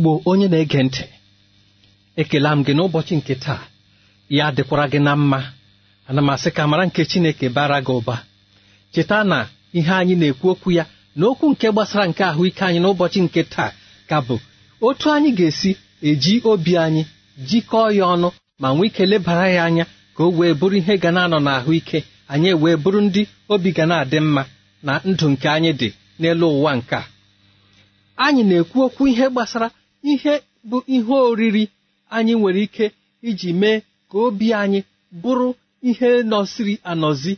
igbo onye na-ege ntị ekela m gị n'ụbọchị nke taa ya dịkwara gị na mma ana m asị ka mara nke chineke bara gị ụba cheta na ihe anyị na-ekwu okwu ya na okwu nke gbasara nke ahụike anyị n'ụbọchị nke taa ka bụ otu anyị ga-esi eji obi anyị jikọọ ya ọnụ ma nwee ike lebara ya anya ka o wee bụrụ ihe ga na-anọ n'ahụike anyị wee bụrụ ndị obi ga na-adị mma na ndụ nke anyị dị n'elu ụwa nke a anyị na-ekwu okwu ihe gbasara ihe bụ ihe oriri anyị nwere ike iji mee ka obi anyị bụrụ ihe nọsiri anọzi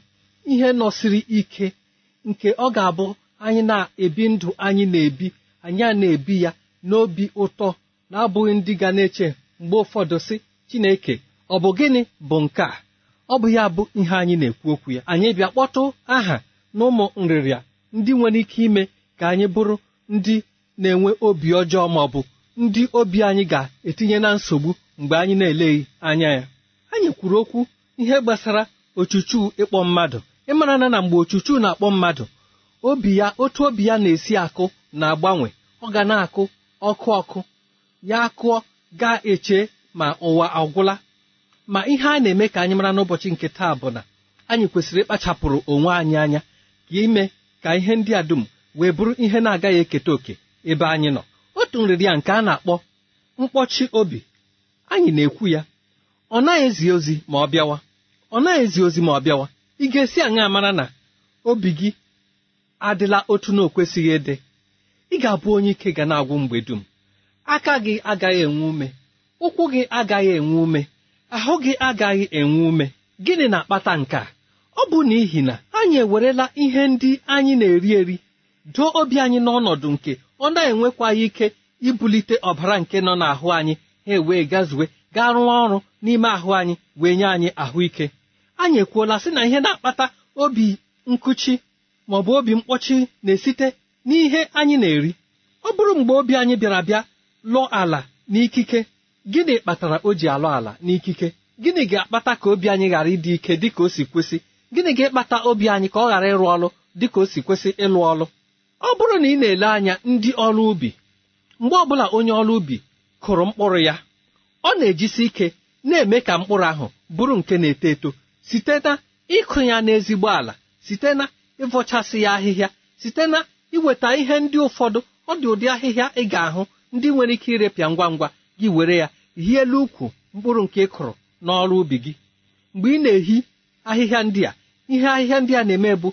ihe nọsiri ike nke ọ ga-abụ anyị na-ebi ndụ anyị na-ebi anyị a na-ebi ya n'obi ụtọ na-abụghị ndị ga na-eche mgbe ụfọdụ sị Chineke ọ bụ gịnị bụ nke a ọ bụ ya bụ ihe anyị na-ekwu okwu ya anyị bịa kpọtụ aha na ụmụ nrịrịa ndị nwere ike ime ka anyị bụrụ ndị na-enwe obi ọjọọ ma ọ bụ ndị obi anyị ga-etinye na nsogbu mgbe anyị na-eleghị anya ya anyị kwuru okwu ihe gbasara ochuchu ịkpọ mmadụ ịmara na na mgbe ochuchu na-akpọ mmadụ obi ya otu obi ya na-esi akụ na-agbanwe ọ ga na-akụ ọkụ ọkụ ya akụọ ga-eche ma ụwa agwụla ma ihe a na-eme ka anyị mara n'ụbọchị nke taa bụ na anyị kwesịrị ịkpachapụrụ onwe anyị anya ka ime ka ihe ndị a dum wee bụrụ ihe na-agaghị eketa òkè ebe anyị nọ atụ nrịrị nke a na-akpọ mkpọchi obi anyị na-ekwu ya ọ naghị ezi ozi ma ọ bịawa ọ naghị ezi ozi ma ọ bịawa ị ga-esi aṅa mara na obi gị adịla otu na okwesịghị ịdị ị ga-abụ onye ike ga na-agwụ mgbe dum aka gị agaghị enwe ume ụkwụ gị agaghị enwe ume ahụ gị agaghị enwe ume gịnị na-akpata nke a ọ bụ n'ihi na anyị ewerela ihe ndị anyị na-eri eri doo obi anyị n'ọnọdụ nke ọ na-enwekwaghị ike ibulite ọbara nke nọ n'ahụ anyị ha ewee gazuwe gaa rụọ ọrụ n'ime ahụ anyị wee nye anyị ahụike anyị ekwuola sị na ihe na-akpata obi nkụchi ma ọ bụ obi mkpọchi na-esite n'ihe anyị na-eri ọ bụrụ mgbe obi anyị bịara bịa lụọ ala n'ikike gịnị kpatara o ji alụ ala n'ikike gịnị ga-akpata ka obi anyị ghara ịdị ike dị ka o si kwesị gịnị ga ekpata obi anyị ka ọ ghara ịrụ ọrụ dị ka o si kwesị ịlụ ọrụ ọ bụrụ na ị na-ele anya ndị ọrụ ubi mgbe ọbụla onye ọrụ ubi kụrụ mkpụrụ ya ọ na-ejisi ike na-eme ka mkpụrụ ahụ bụrụ nke na-eto eto site na ịkụ ya n'ezigbo ala site na ịvọchasị ya ahịhịa site na iweta ihe ndị ụfọdụ ọ dị ụdị ahịhịa ị ga-ahụ ndị nwere ike irepịa ngwa ngwa gị were ya hie elu ukwu mkpụrụ nke ị kụrụ n'ọrụ ubi gị mgbe ị na-ehi ahịhịa ndị a ihe ahịhịa ndị a na-eme bụ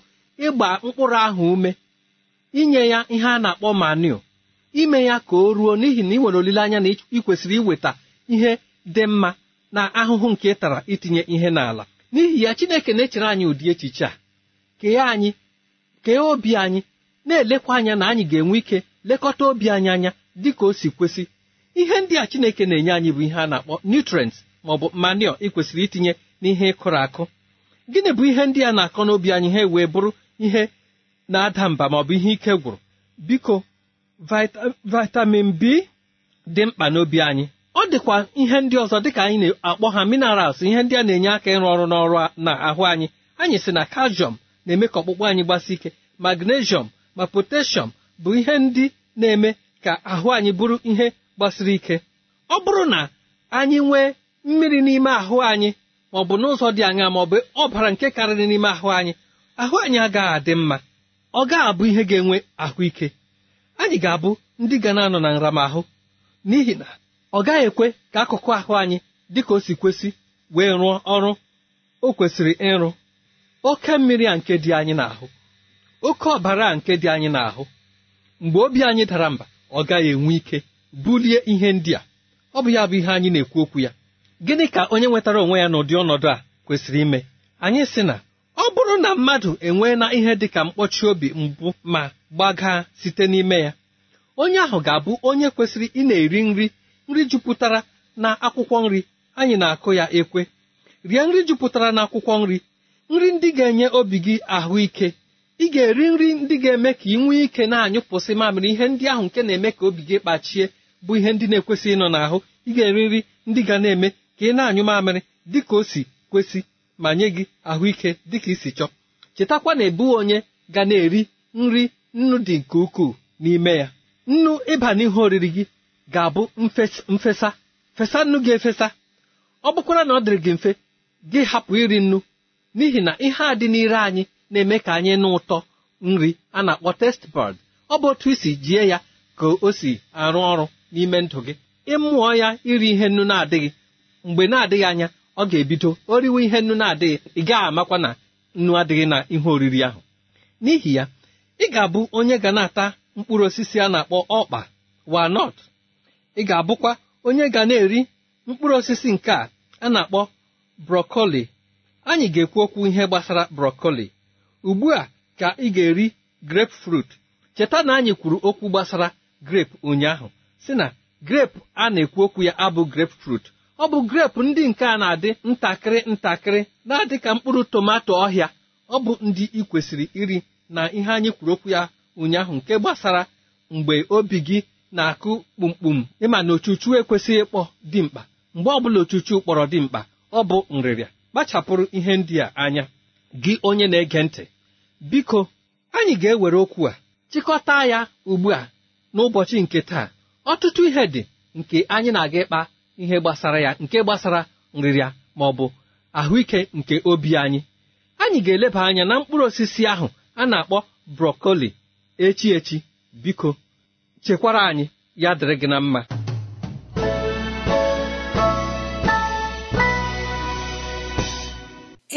ịgba mkpụrụ ahụ ume inye ya ihe a na-akpọ manio ime ya ka o ruo n'ihi na ị nwere olileanya na ị kwesịrị iweta ihe dị mma na ahụhụ nke ị tara itinye ihe n'ala n'ihi ya Chineke na-echere anyị ụdị echiche a kee anyị kee obi anyị na-elekwa anya na anyị ga-enwe ike lekọta obi anyị anya dị ka o si kwesị ihe ndị a Chineke na-enye anyị bụ ihe a na-akpọ nutrients ma ọ bụ manure ị kwesịrị itinye n'ihe ịkụrụ akụ gịnị bụ ihe ndị a na-akọ n'obi anyị ha wee bụrụ ihe na-ada mba ma ihe ike gwụrụ biko vitamin b dị mkpa n'obi anyị ọ dịkwa ihe ndị ọzọ dịka anyị na-akpọ ha minerals ihe ndị a na-enye aka ịrụ ọrụ n'ọrụ na ahụ anyị anyị si na calcium na-eme ka ọkpụkpụ anyị gbasi ike magnesium ma potassium bụ ihe ndị na-eme ka ahụ anyị bụrụ ihe gbasiri ike ọ bụrụ na anyị nwee mmiri n'ime ahụ anyị maọ ọ bụ n'ụzọ dị anya ma ọ bụ ọbara nke karịrị n'ime ahụ anyị ahụ anyị agaghị adị mma ọ gaghị abụ ihe ga-enwe ahụike anyị ga-abụ ndị ga na-anọ na nramahụ n'ihi na ọ gaghị ekwe ka akụkụ ahụ anyị dị ka o si kwesị wee rụọ ọrụ o kwesịrị ịrụ oke mmiri a nke dị anyị n'ahụ oke ọbara a nke dị anyị n'ahụ mgbe obi anyị dara mba ọ gaghị enwe ike bulie ihe ndị a ọ bụ ya bụ ihe anyị na-ekwu okwu ya gịnị ka onye nwetara onwe ya n'ụdị ọnọdụ a kwesịrị ime anyị sị na ọ bụrụ na mmadụ enwee na ihe dị ka mkpọchi obi mbụ ma gbaga site n'ime ya onye ahụ ga-abụ onye kwesịrị ị na-eri nri nri jupụtara na akwụkwọ nri anyị na-akụ ya ekwe rie nri jupụtara na akwụkwọ nri nri ndị ga-enye obi gị ahụike ị ga-eri nri ndị ga-eme ka ị nwee ike na-anyụpụsị mamịrị ihe ndị ahụ nke na-eme ka obi gị kpachie bụ ihe ndị na-ekwesị ịnọ n'ahụ ị ga-eri nri ndị ga na-eme ka ị na-anyụ mamịrị dị ka o si kwesị ma nye gị ahụike dịka isi chọọ chetakwa na ebu onye ga na-eri nri nnu dị nke ukwuu n'ime ya nnu ịba n'ihe oriri gị ga-abụ mfesa fesa nnu gị efesa ọ bụkwara na ọ dịrị gị mfe gị hapụ iri nnu n'ihi na ihe a dị n'ire anyị na-eme ka anyị nụ ụtọ nri a na-akpọ testbọd ọ bụ otu isi jie ya ka o si arụ ọrụ n'ime ndụ gị ịmụọ ya iri ihe nnu na-adịghị mgbe na-adịghị anya ọ ga-ebido o riwe ihe nnu na-adịghị ị gaghị amakwa na nnu adịghị na ihe oriri ahụ n'ihi ya ị ga-abụ onye ga na-ata mkpụrụ osisi a na-akpọ ọkpa walnut ị ga-abụkwa onye ga na-eri mkpụrụ osisi nke a a na-akpọ brokoli anyị ga-ekwu okwu ihe gbasara brokoli ugbu a ka ị ga-eri frut cheta na anyị kwuru okwu gbasara grep ụnyaahụ si na grep a na-ekwu okwu ya abụ frut ọ bụ grep ndị nke a na-adị ntakịrị ntakịrị na-adị ka mkpụrụ tomato ọhịa ọ bụ ndị ị kwesịrị iri na ihe anyị kwuru okwu ya ụnyaahụ nke gbasara mgbe obi gị na-akụ kpumkpum ịma na ochuchu ekwesịghị ịkpọ dimkpa mgbe ọbụla ochuchu kpọrọ dimkpa ọ bụ nrịrịa kpachapụrụ ihe ndị a anya gị onye na-ege ntị biko anyị ga-ewere okwu a chịkọta ya ugbu a n'ụbọchị nke taa ọtụtụ ihe dị nke anyị na-aga ịkpa ihe gbasara ya nke gbasara nrịrịa ma ọ bụ ahụike nke obi anyị anyị ga-eleba anya na mkpụrụ osisi ahụ a na-akpọ brokoli echi biko chekwara anyị ya dịrị gị na mma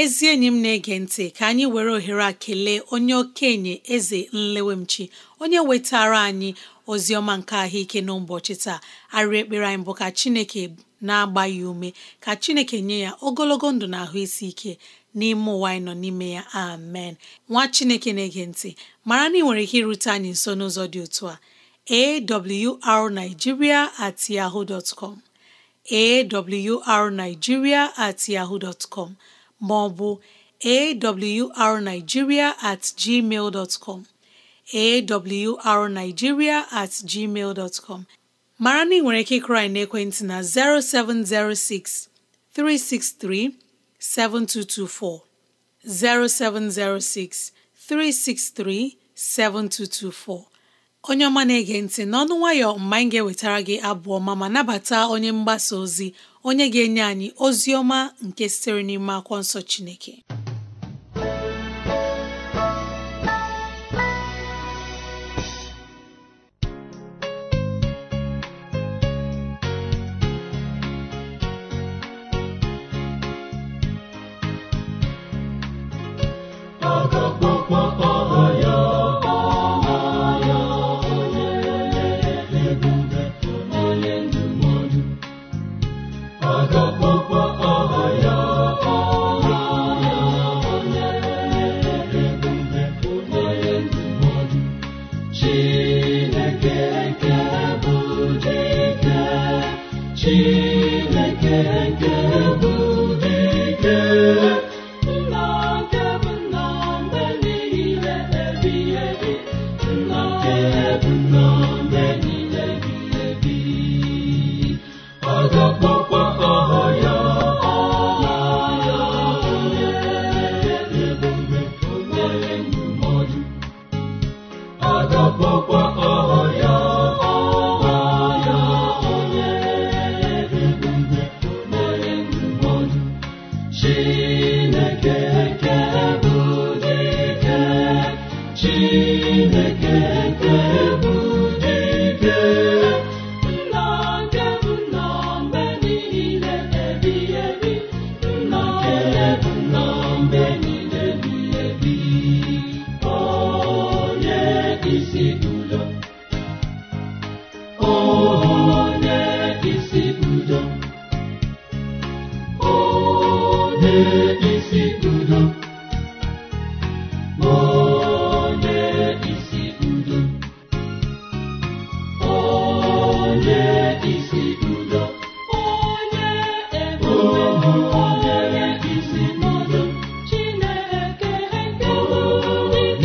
ezi enyi m na-ege ntị ka anyị were ohere a kelee onye okenye eze nlewemchi onye wetara anyị ozi ọma nke ahụike n'ụbọchị taa arịrị ekpere anyị bụ ka chineke na-agba ya ume ka chineke nye ya ogologo ndụ na ahụ isi ike n'ime ụwa anyị nọ n'ime ya amen nwa chineke na-ege ntị mara na nwere ike irute anyị nso n'ụzọ dị otu a awrnigeria at yahoo com awrnigeria at yahoo maọbụ com com mara na ị nwere ike ịkụrụ anyị ekwentị na 0706 363 7224 0706 363 7224 onye ọma na-ege ntị n'ọnụ nwayọ mgbe anyị ga-ewetara gị abụọ ma ma nabata onye mgbasa ozi onye ga-enye anyị ozi ọma nke sitere n'ime akwụkwọ nsọ Chineke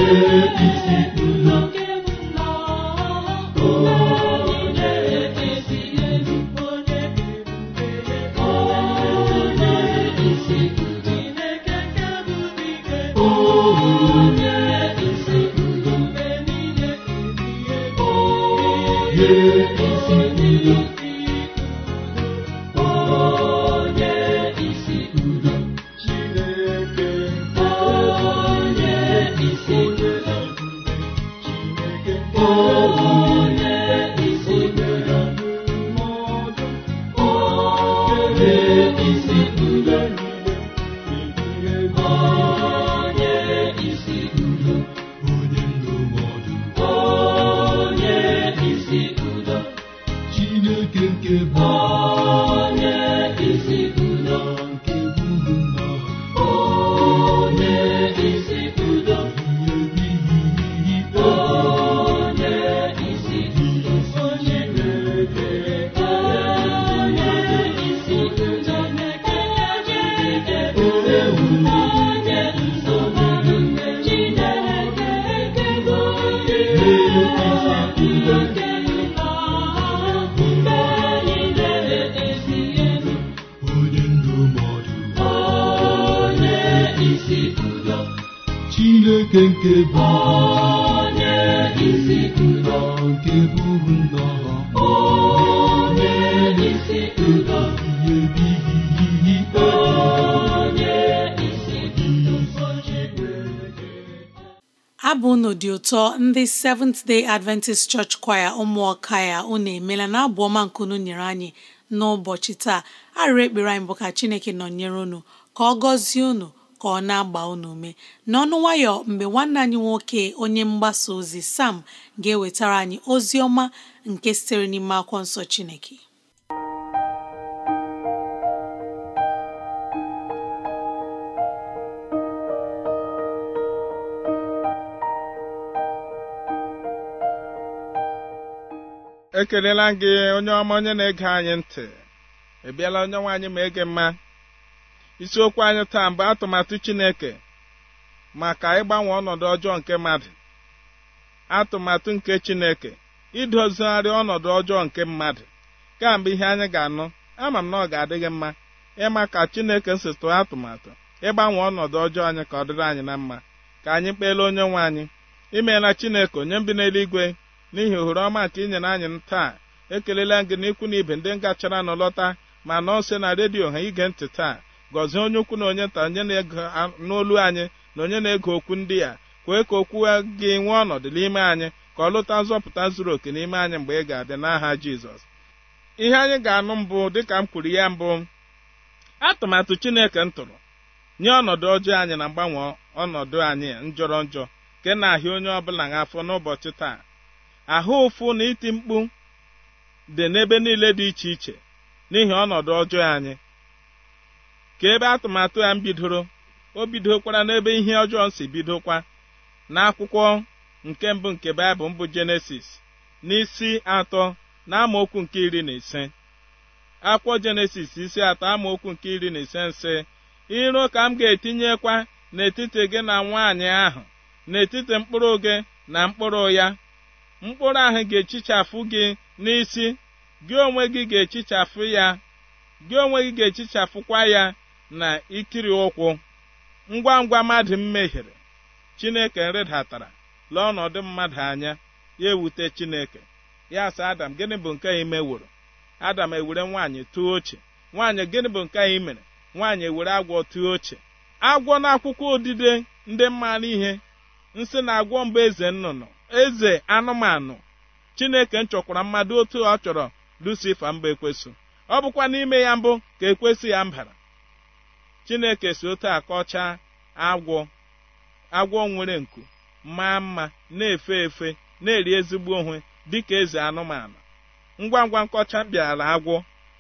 isi nke nke bụ onye isi nke buru nnọọ onye isi abụ unu dị ụtọ ndị Seventh Day Adventist Church Choir ụmụọka ya unu emela na abụ ọma nke unu nyere anyị n'ụbọchị taa arịrị ekpere anyị bụ ka Chineke nọnyere unu ka ọ gọzie unu ka ọ na-agba unu ume n'ọnụ nwayọ mgbe nwanne anyị nwoke onye mgbasa ozi Sam ga-ewetara anyị ozi ọma nke sitere n'ime akwụkwọ nsọ Chineke ekelela gị onye ọma onye na-ege anyị ntị ị bịala onye nwaanyị anyị ma ege mma isiokwu anyị taa mbụ atụmatụ chineke maka ịgbanwe ọnọdụ ọjọọ nke mmadụ atụmatụ nke chineke idozigharị ọnọdụ ọjọọ nke mmadụ kamgbe ihe anyị ga-anụ ama m na ọ ga-adịghị mma ịma ka chineke si tụọ atụmatụ ịgbanwe ọnọdụ ọjọọ anyị ka ọ dịrị anyị na mma ka anyị kpeele onye nwe anyị imeela chineke onye mbi n'eluigwe n'ihi ohere ọma nke i anyị taa ekelela gị n'ikwu na ibe ndị ngachara nụ lọta ma nọọ nso na redio ha ige ntị taa gọzie onye ukwu na onye nta onye na-ege n'olu anyị na onye na-ege okwu ndị a kwee ka okwu gị nwee ọnọdụ n'ime anyị ka ọ lụta nzọpụta zuru oke n'ime anyị mgbe ị ga adị n'aha jizọs ihe anyị ga-anụ mbụ dịka m kwuru ya mbụ atụmatụ chineke m tụrụ nye ọnọdụ ọjọọ anyị na mgbanwe ọnọdụ anyị njọrọ njọ nke na-ahịa onye ọbụla n'afọ n'ụbọchị taa ahụ ụfụ na iti mkpu dị n'ebe niile dị iche iche n'ihi ọnọdụ ọjọọ anyị ka ebe atụmatụ ya m bidoro o bidokwara n'ebe ihe ọjọọ si bidokwa n'akwụkwọ nke mbụ nke baịbụl mbụ jenesis n'isi atọ na amaokwu nke iri na ise akwụkwọ jenesis isi atọ amaokwu nke iri na ise nsị iro ka m ga-etinyekwa n'etiti gị na nwaanyị ahụ n'etiti mkpụrụ gị na mkpụrụ ya mkpụrụ ahụ ga-echichafụ gị n'isi gị onwe gị ga-echichafụ ya gị onwe gị ga-echichafụkwa ya na ikiri ụkwụ ngwa ngwa mmadụ mmehiere chineke nrịdatara lee ọnọdụ mmadụ anya ya ewute chineke ya sị adam gịnị bụ nke ị adam ewere nwaanyị tụọ oche nwaanyị gịnị bụ nke ị mere nwaanyị ewere agwọ tụọ oche agwọ na akwụkwọ odide ndị mmanụ ihe nsị na agwọ mba eze nnụnụ eze anụmanụ chineke chọkwara mmadụ otu ọ chọrọ lucifa mba ekwesụ ọ bụkwa n'ime ya mbụ ka ekwesị ya mbara chineke si otu akọcha agwọ agwọ nwere nku maa mma na-efe efe na-eri ezigbo onwe dịka eze anụmanụ ngwa ngwa nkọcha bịara agwọ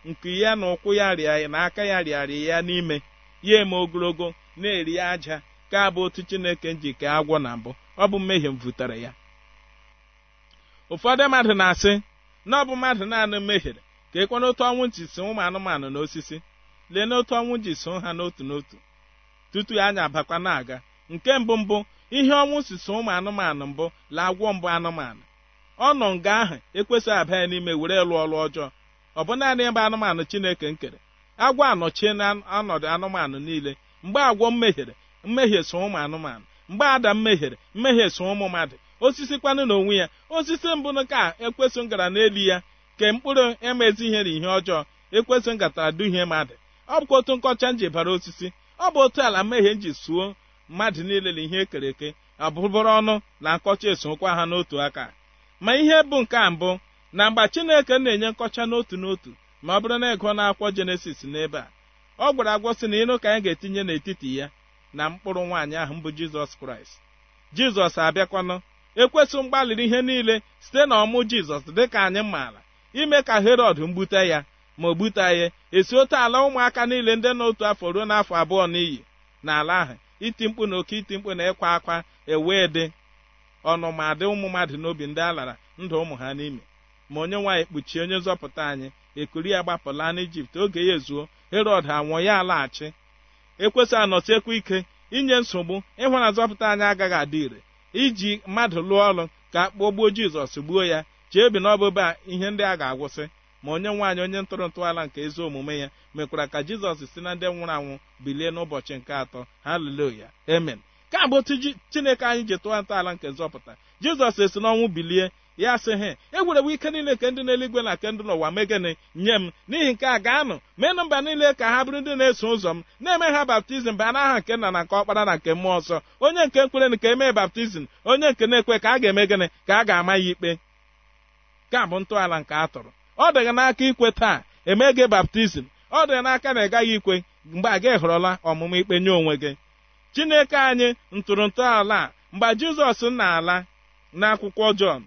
nku ya na ụkwụ ya rịa na aka ya rịarị ya n'ime ya eme ogologo na-eri aja ka abụ otu chineke ji agwọ na mbụ ọ bụ mmehie m butere ya ụfọdụ mmadụ na-asị na ọ bụ mmadụ naanị mehiere ka ekwana otu ọnwụ nchi si ụmụ anụmanụ na osisi lee n'otu ọnwụ ji so ha n'otu n'otu tutu anya abakwa na-aga nke mbụ mbụ ihe ọnwụ si so ụmụ anụmanụ mbụ la agwọ mbụ anụmanụ ọ nọ nga ahụ ekwesịghị abịa ya n'ime were lụọ ọlụ ọjọọ ọ bụ naanị ebe anụmanụ chineke nkere agwọ anọchie na ọnọdụ anụmanụ niile mgbe agwọ mmehiere mmehie so ụmụ anụmanụ mgbe ada mmehiere mmehie so ụmụ mmadụ osisi kwanụ onwe ya osisi mbụ ka ekwesị ngara n'elu ya ke mkpụrụ emezigheri ihe ọjọọ ekwesị ngatara duhie mmadụ ọ bụkwa otu nkọcha nji bara osisi ọ bụ otu ala mmehie nji suo mmadụ niile na ihe ekere eke abụbụrụ ọnụ na nkọcha esokwa ha n'otu aka ma ihe bụ nke a mbụ na mgbe chineke na-enye nkọcha n'otu n'otu ma ọ bụrụ na ịgụọ n'akwọ jenesis n'ebe a ọ gwara agwọ sị na ịnụ ka anyị ga-etinye n'etiti ya na mkpụrụ nwaanyị ahụ mbụ jizọs kraịst jizọs abịakwanụ ekwesị mgbalịrị ihe niile site na ọmụ jizọs dịka anyị maara ime ka herọd mgbute ya ma o butaghị esi otu ala ụmụaka niile ndị n'otu afọ ruo n'afọ abụọ n'iyi n'ala ahụ iti mkpu na oke iti mkpu na ịkwa akwa ewee dị ọnụmadị ụmụ mmadụ n'obi ndị a lara ndụ ụmụ ha n'ime ma onye nwaanyị kpuchie onye nzọpụta anyị ekuri ya gbapụla n'ijipt oge ya ezuo herod anwụọ ya alaghachi ekwesị anọsiekwa ike inye nsogbu ịhụ na nzọpụta anyị agaghị adị ire iji mmadụ lụọ ọrụ ka akpọ gbuo jizọs gbuo ya chee bi na ihe ndị a ga-agwụsị ma onye nwaanyị onye ntụrụ ntọala nke ezi omume ya mekwara ka jizọs si na ndị nwụrụ anwụ bilie n'ụbọchị nke atọ haleluya emen ka bụ otu chineke anyị ji tụọ ntọala nke nzọpụta jizọs esi n'ọnwụ bilie ya sị he egwerewo ike niile nke ndị n'eluigwe na nke ndị n'ụwa megịnị nye m n'ihi nke a gaanụ meenụ mba niile ka ha bụrụ ndị na-eso ụzọ m na-eme ha baptizim baa n'aha nke nna na nke ọkpara na nke mmụọ nsọ onye nke nkwere nke emee baptizim onye nke na-ekwe ka a ga-eme gịnị ka a ga-ama ya ikpe ka bụ ntọala nke a tụrụ ọ dịghị n'aka ikwe taa emege gị baptizim ọ dịghị n'aka na ị gaghị ikwe mgbe a gị họrọla ọmụmụ ikpe nye onwe gị chineke anyị ala mgbe jizọs na-ala akwụkwọ jọn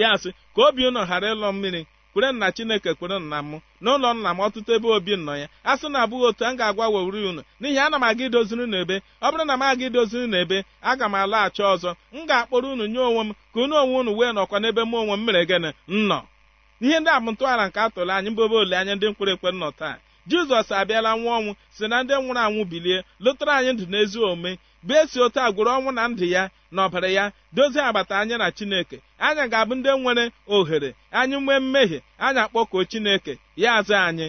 ya sị ka obi unu ghara ịlọ mmiri kwere nna chineke kwere nna m n'ụlọ nna m ọtụtụ ebe obi nọ ya a sị na abụghị otu a m ga-agwa wewuri unu n'ihi ana m aga idoziri n'ebe ọ bụrụ na m aga idoziri n'ebe aga m alaghachi ọzọ m ga-akpọrọ unu nye onwe m ka unu onwe unu wee nọkwa n'ebe m onwe m mere gịnị nnọ ihe ndị a bụ ntọala nke atụrụ anyị mbụ ole anya ndị mkpụrụ ekwe nọ taa jizọs abịala nwa ọnwụ si na ndị nwụrụ anwụ bilie lụtara anyị ndụ n'ezi omume bụ esi otu a ọnwụ na ndụ ya na ọbara ya dozie agbata anya na chineke anya ga-abụ ndị nwere ohere anyị nwee mmehie anya akpọkuo chineke ya azụ anyị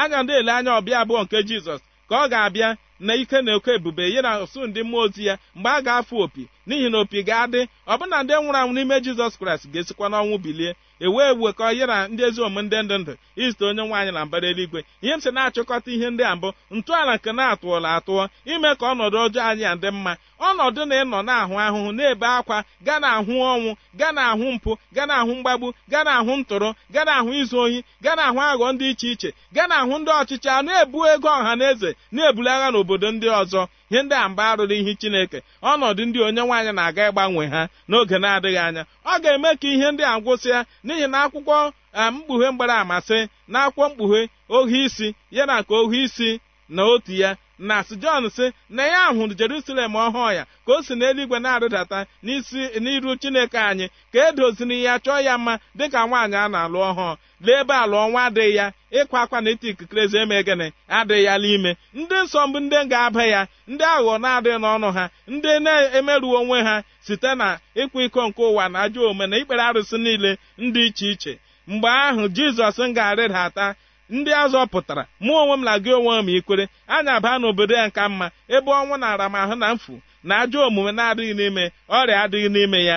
anya ndị ele anya ọbịa abụọ nke jizọs ka ọ ga-abịa na ike na oke ebube ya na osu ndị mmụọ ozi ya mgbe a ga-afụ opi n'ihi na opi ga-adị ọbụna ndị nwụrụ anwụ n'ime jizọs kraịst ga-esikwa n'ọnwụ bilie ka ọ ya na ndị ezi omume ndị ndụ ndụ izute onye nwaanyị na mbara eluigwe ihe m si na-achịkọta ihe ndị a mbụ ntọala nke na-atụọla atụọ ime ka ọnọdụ ọjọọ anyị a dị mma ọnọdụ na ịnọ na-ahụ ahụhụ na-ebe akwa ga na ahụ ọnwụ ga na ahụ mpụ gaa na ahụ mgbagbu gaa na ahụ ntụrụ gaa na ahụ izu ohi gaa na ahụ aghọ ndị iche iche gaa na ahụ ndị ọchịchị a na-ebu ego ọha na eze na-ebulagha n'obodo ndị ọzọ ihe ndị a mba arụrụ ihe chineke ọnọdụ ndị onye nwaanyị na-aga ịgbanwe ha n'oge na-adịghị anya ọ ga-eme ka ihe ndị a gwụsịa n'ihi na akwụkwọ eh, mkpughe mgbara amasị na akwụkwọ mkpughe ohi isi ya na ka ohu isi na otu ya na sijọn si na ya hụrụ jerusalem ọhụụ ya ka o si n'eluigwe na arịdata n'isi n'iru chineke anyị ka edoziri ya chọọ ya mma dịka nwaanyị a na-alụ ọhụụ lee ebe a lụọ nwa adịghị ya ịkwa akwa na iti ikikere eme gịnị adịghị ya n'ime ndị nsọ mbụ ndị ga-aba ya ndị aghụghọ na-adịghị n'ọnụ ha ndị na-emeruo onwe ha site na ịkwa iko nke ụwa na ajọ ome na ikpere arụsị niile ndị iche iche mgbe ahụ jizọs m ga-arịdata ndị azọpụtara pụtara mụ onwe m na gị onwe m ikwere anyị aba n'obodo ya nka mma ebe ọnwụ na-ara m ahụ na mfu na ajọ omume na-adịghị n'ime ọrịa adịghị n'ime ya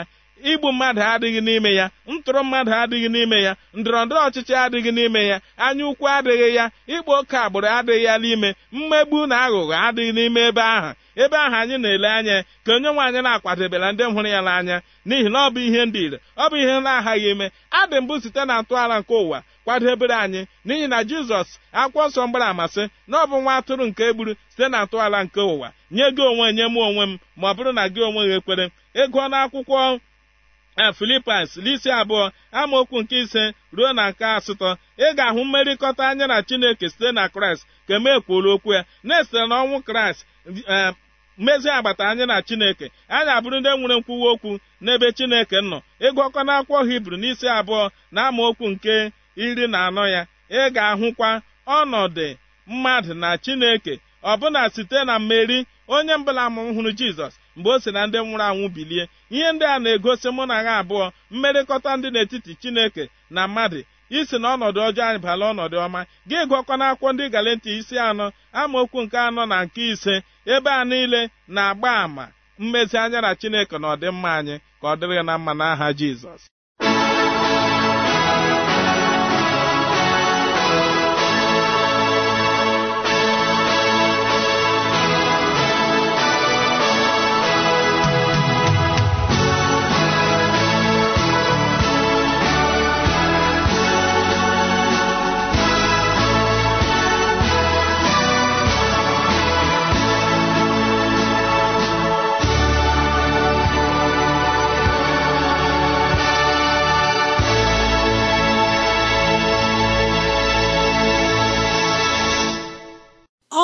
igbu mmadụ adịghị n'ime ya ntụrụ mmadụ adịghị n'ime ya ndọrọndọrọ ọchịchị adịghị n'ime ya anya ukwu adịghị ya ịkpa oke agbụrụ adịghị ya n'ime mmegbu na aghụghọ adịghị n'ime ebe ahụ ebe ahụ anyị na-ele anya ka onye nwe anyị na-akwadebela ndị hụrụ ya n'anya n'ihi na ọ bụ ihe ndị ire ọ bụ ihe na-aghaghị ime adị mbụ site na ntọala nke ụwa kwadebere anyị n'ihi na jizọs akwụkwọ nsọ mgbara amasị na ọ bụ nwa atụrụ nke egburu site na ntọala nke ụwa nye gị onwe nye m onwe m ma ọ bụrụ na gị onwe gị ekwere ego akwụkwọ na eh, filipas n'isi abụọ amaokwu nke ise ruo na nke asatọ ị ga-ahụ mmerịkọta anya na chineke site na kraịst ka eme kwuola okwu ya na-esite ọnwụ kraịst eh, mmezi agbata anyị na chineke anyị abụrụ ndị nwere nkwuwa okwu n'ebe chineke nọ ịgụọkọ na akwụkwọ hibru n'isi abụọ na okwu nke iri na anọ ya ị ga-ahụkwa ọnọdụ mmadụ na chineke ọbụna site na mmeri onye mbụla m hụrụ jizọs mgbe o si na ndị nwụrụ anwụ bilie ihe ndị a na-egosi mụ na ha abụọ mmerịkọta ndị n'etiti chineke na mmadụ isi na ọnọdụ ọjọọ anyị bala ọnọdụ ọma gị gụọkọ na akwụkwọ ndị galanti isi anọ amaokwu nke anọ na nke ise ebe a niile na-agba àmà mmezi anya na chineke na ọdịmma anyị ka ọ dịrị na mma n'aha jizọs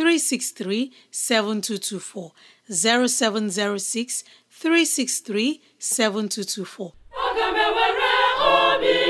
363 7224 0706 363 7224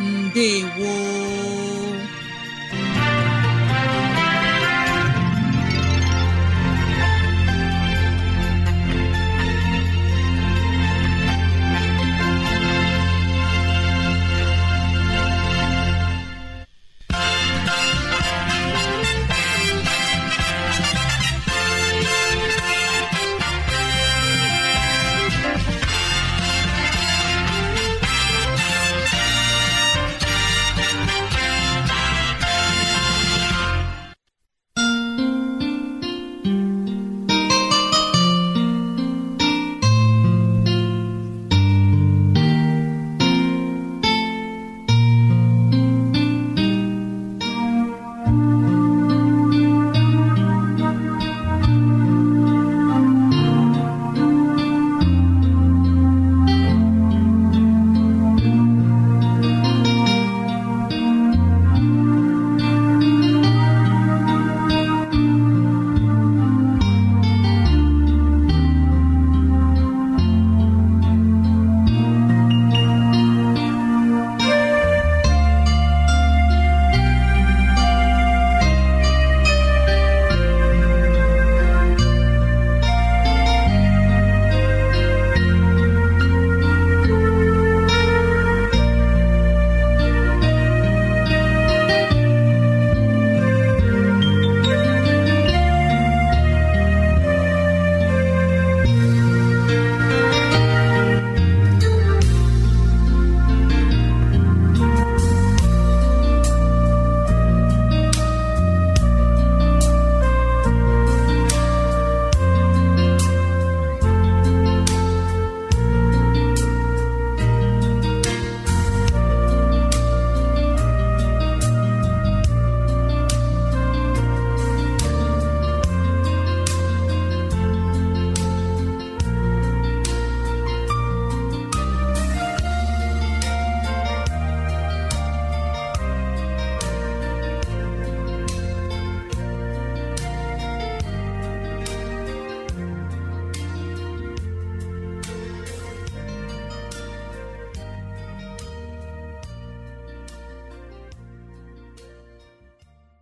ndewo